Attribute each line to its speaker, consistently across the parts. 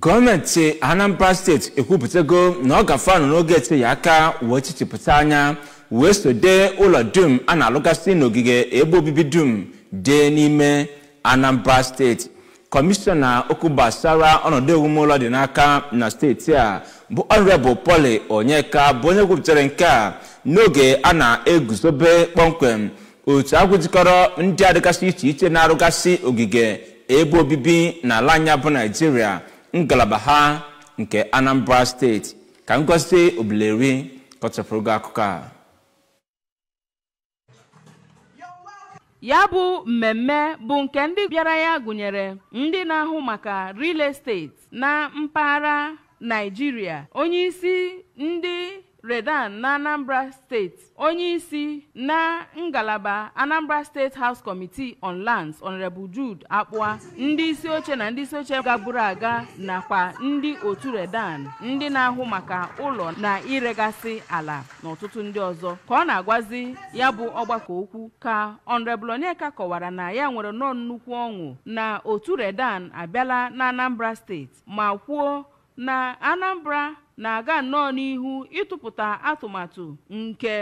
Speaker 1: gọọmenti anambra steeti ekwupụtago na ọ gafanụ n'oge etinye aka wee chichipụta anya wee sode ụlọ dum a na-alụgasị n'ogige ebe obibi dum dị n'ime anambra steeti kọmishọna okwu gbasara ọnọdụ ụlọ dị n'aka na steeti a bụ ọnrebụ poli onyeka bụ onye kwupụtara nke a n'oge a na-eguzobe kpọmkwem otu agwụjikọrọ ndị a dịgasị iche iche na-arụgasị ogige ebe obibi n'ala anya bụ naijiria ngalaba ha nke anambra steeti ka ngọzie obileri kọchapụrụ akụkọ a
Speaker 2: ya bụ mmemme bụ nke ndị bịara ya gụnyere ndị na-ahụ maka real estate na mpaghara naijiria onye isi ndị redan na anambra steeti onye isi na ngalaba anambra steeti house committee on lands honorable jude akpụa ndị isi oche na ndị isi oche gagburu aga nakwa ndị otu redan ndị na-ahụ maka ụlọ na iregasị ala na ọtụtụ ndị ọzọ ka ọ na-agwazi ya bụ ọgbakọ okwu ka honorable onyeka kọwara na ya nwere nnọọ nnukwu ọṅụ na otu redan abịala na anambra steeti ma kwuo na anambra na-aga nnọọ n'ihu ịtụpụta atụmatụ nke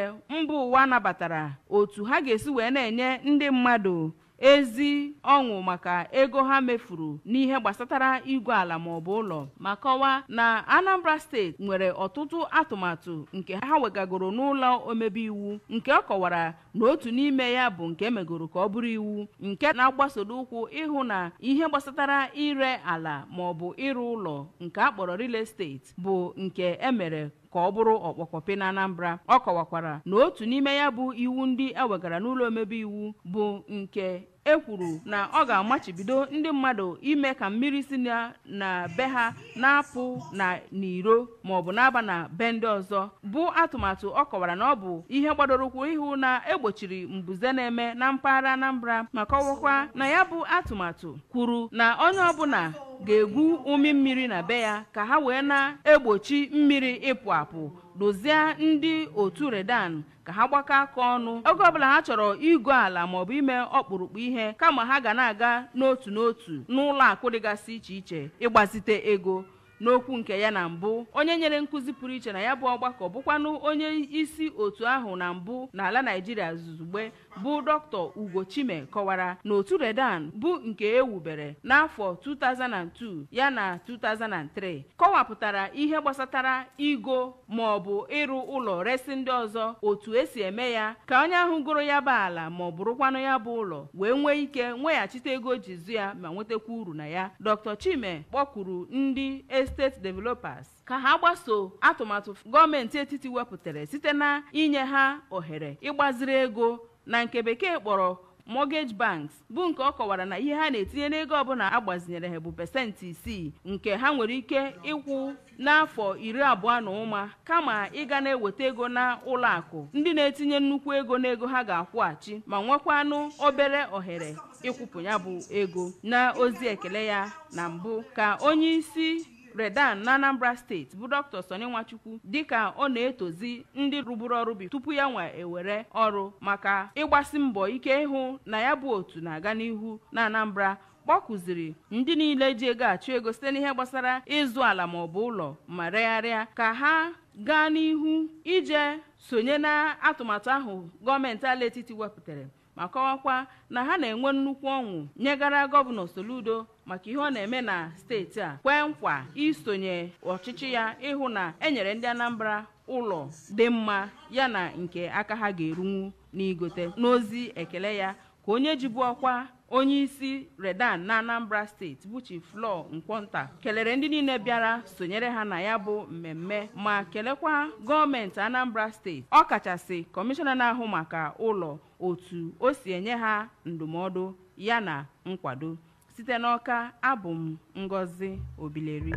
Speaker 2: mba ụwa nabatara otu ha ga-esi wee na-enye ndị mmadụ ezi ọṅụ maka ego ha mefuru n'ihe gbasatara igwe ala ma maọbụ ụlọ ma kọwaa na anambra steeti nwere ọtụtụ atụmatụ nke ha wegagoro n'ụlọ omebe iwu nke ọ kọwara na otu n'ime ya bụ nke emegoro ka ọ bụrụ iwu nke na-agbasodo ụkwụ ịhụ na ihe gbasatara ire ala maọbụ ịrụ ụlọ nke akpọrọ real Steeti bụ nke emere ka ọ bụrụ ọkpọkọpe na anambra ọ kọwakwara na otu n'ime ya bụ iwu ndị ewegara n'ụlọ omebe iwu bụ nke e kwuru na ọ ga-amachibido ndị mmadụ ime ka mmiri si na be ha na-apụ na n'iro maọbụ na-aba na be ndị ọzọ bụ atụmatụ ọ kọwara na ọ bụ ihe gbadorokwu ihu na egbochiri mbuze na-eme na mpaghara Anambra ma kọwakwa na ya bụ atụmatụ kwuru na onye ọbụla ga-egwu umi mmiri na be ya ka ha wee na-egbochi mmiri ịpụ apụ dozie ndị otu redan ka ha gbakọ aka ọnụ oge ọbụla ha chọrọ ịgụ ala maọbụ ime ọkpụrụkpụ ihe kama ha ga na-aga n'otu n'otu n'ụlọ akụ dịgasị iche iche ịgbazite ego n'okwu nke ya na mbụ onye nyere nkụzi pụrụ iche na ya bụ ọgbakọ bụkwanụ onye isi otu ahụ na mbụ n'ala naijiria zuzugbe bụ dr ugochime kọwara na otu redan bụ nke ewubere n'afọ 2002 ya na 2003 kọwapụtara ihe gbasatara igo ma ọ bụ ịrụ ụlọ resi ndị ọzọ otu esi eme ya ka onye ahụ goro ya bụ ala ma ọ bụrụkwanụ ya bụ ụlọ wee nwee ike nweghachite ego jizu ya ma nwetakwa uru na ya dr chime kpọkwuru ndị e steeti developers ka ha gbaso atụmatụ gọọmenti etiti wepụtara site na inye ha ohere ịgbaziri ego na nke bekee kpọrọ mortgage banks bụ nke ọ kọwara na ihe ha na-etinye n'ego ọbụla agbazinyere ha bụ pesentị isii nke ha nwere ike ịkwụ n'afọ iri abụọ na ụma kama ịga na-eweta ego na ụlọ akụ ndị na-etinye nnukwu ego n'ego ha ga-akwụghachi ma nwekwanụ obere ohere ịkwụpụ ya bụ ego na ozi ekele ya na mbụ ka onye isi redan na anambra steeti bụ dr soni nwachukwu dịka ọ na-etozi ndị rụburu ọrụ bi tupu ya nwa ewere ọrụ maka ịgbasi mbọ ike ịhụ na ya bụ otu na-aga n'ihu na anambra kpọkụziri ndị niile ji ego achụ ego site n'ihe gbasara ịzụ ala bụ ụlọ ma regharịa ka ha gaa n'ihu ije sonye na atụmatụ ahụ gọọmenti ala etiti wepụtara ma kọwakwa na ha na-enwe nnukwu ọnwụ nyegara gọvanọ Soludo maka ihe ọ na-eme na steeti a kwee nkwa isonye ọchịchị ya ịhụ na enyere ndị Anambra ụlọ dị mma yana nke aka ha ga-erunwu n'igote n'ozi ekele ya ka onye jibu ọkwa onye isi redan na anambra steeti buchi chi flọ nkwonta kelere ndị niile bịara sonyere ha na ya bụ mmemme ma kelekwa gọọmenti anambra steeti ọ kachasị kọmishọna na-ahụ maka ụlọ otu o si enye ha ndụmọdụ ya na nkwado site n'ọka abụ m ngozi obileri